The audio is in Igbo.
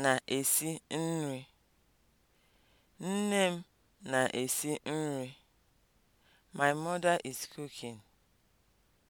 na-esi nri. Nne m na-esi nri. My mother is cooking.